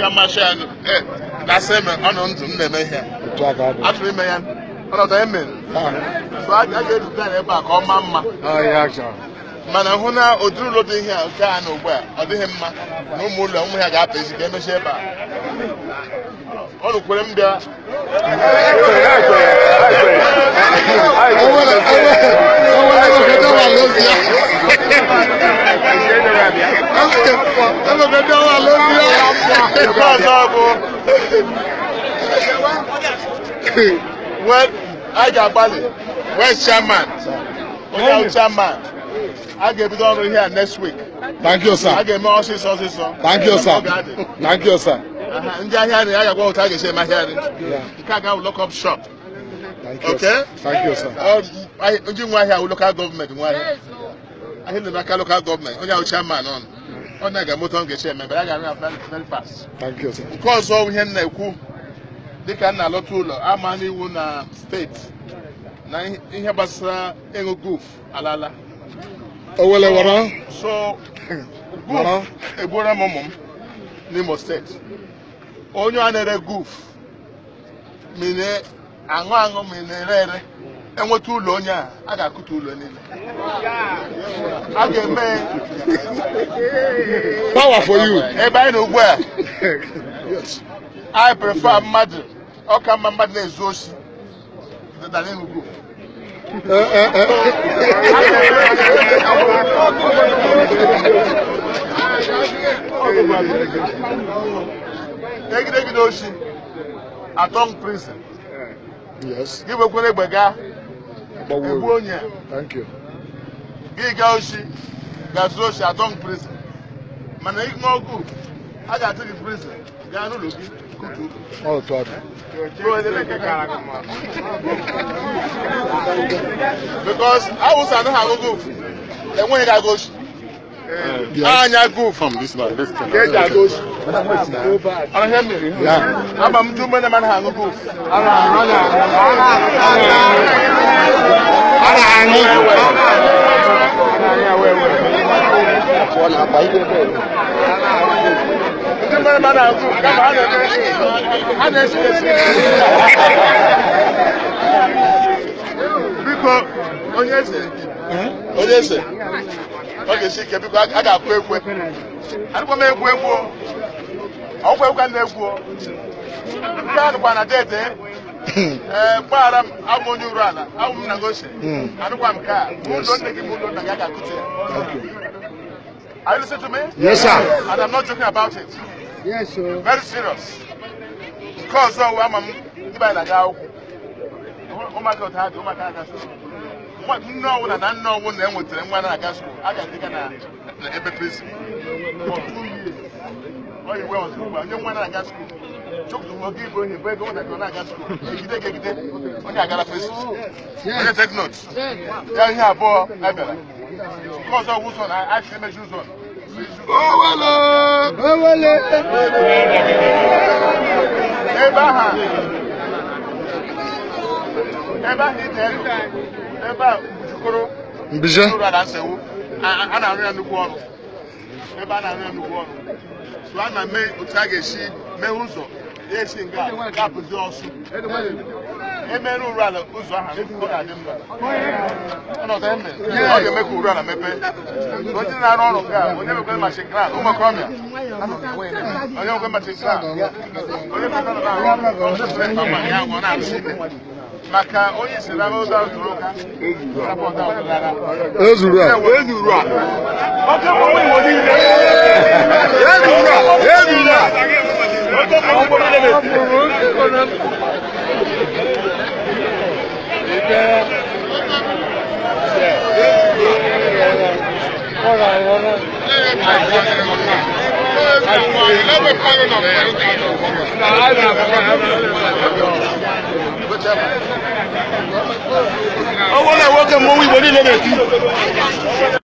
ga amasị ya gasị eme ọnụ ndụ m na-eme ihe atụrụ ime ya ọnọdụ eme so a ga-eduga ya ebe a ka ọ ma mma mana hụ na ụdịrị ụlọ dị ihe a nke a na ugbu a ọ dịghị mma na ụmụ ụlọ ụmụ ya ga-apụ ezi ka emechi ebe a ọnụ kwere m bịa I Wẹ́n Bali? wẹ́n chairman, onye ahụ chairman, I get ebido ọrụ here next week. Thank you, sir. A ga more ọsịsọ sir. Thank you, sir. Thank you, sir. Ndị ahịa nri, a ga-agwa ụta a ga-esi eme ahịa nri. Nke lock up shop. Thank you, okay? Thank you, sir. Ndị nwe ahịa awụ local government nwe ahịa. Ahịa nri n'aka local government, onye ahụ chairman ọnụ. ọ na-aga moto m ga-eche eme mbere a ga-arụ very fast nke ọzọ ihe m na-ekwu dịka nna na-alọta ụlọ ama n'iwu na steeti na ihe gbasara ịṅụ guf alala so guf egbura m ụmụ m n'imo steeti onye a na-ere guf mine aṅụ aṅụ mine ere ere enweta ụlọ onye a a ga-akụta ụlọ niile a ga-eme power for you. Ebe na ugbu a. I prefer mmadụ. Ọ ka mma mmadụ na-ezu oshi. Than Enugu. Egidegide oshi. Atong prison. Yes. Gị nwekwara egbe gaa. onye. Thank you. Gị gaa oshi. Gazuo oshi Atong prison mana ihe ọgụ a ga-atụ gị prison gaa n'ụlọ gị enweghị gị agụ anya go from this man. Let's turn. Get that goes. Ana hear me? na-akpa ihe biko onye eze ọ ga-esi ike biko a ga-akụ egwu adịkwa m egwu egwu ọgwụ egwu a na-egwu nke a na dede ee eh, gbaghara m abụ onye uru ala abụ m hmm. na gose anụkwa m a nne gị bụ ụlọ na gị a ga ya Are you listening to me? Yes, sir. And I'm not joking about it. Yes, sir. Very serious. Because so I'm a níbàyí là dáwọ́. Ó máa kẹ́ ọ̀tá àdé, ó máa kẹ́ àga sùkúl. Nne ọwụwa na nne ọwụwa na enwetere nwa na-aga sukuu, a ga-adịga na ebe presi. Ọ yi wee ọzọ ugbu a, onye nwa na-aga sukuu. Chukwu oge igbo onye bụ ego ọ na-aga na-aga sukuu. Egide ga-egide, onye agara presi. Onye take note. Ya ihe abụọ, a bịara. Because of Wilson, I asked him a Wilson. Owele! Owele! Eba ha. Eba itelu. Eba Ujukoro. Mbije. Ujukoro Adansewu. A na-arụ ya nnukwu ọrụ. Ebe a na-arụ ya nnukwu ọrụ. So a na mee otu a ga-esi mee ụzọ. Ya esi nga gapụzi ọsụ emere uru ala ụzọ aha ọ mma ọnọdụ eme ọ ga-eme ka uru ala mepee onye na-arụ ọrụ nke a onye mekwe machi nkra ụmụ onye mekwe machi nkra onye mekwe machi nkra maka onye isi n'ama ụzọ ahụ ụka ezuru a ezuru a ezuru a Ọwọ́ náà welcome kẹ́ mọ́ wíwọlé lọ́bẹ̀ẹ́ tí.